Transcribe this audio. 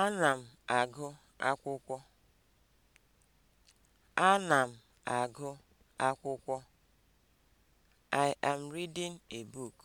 Ana m agụ akwụkwọ. Ana m agụ akwụkwọ. I am reading a book.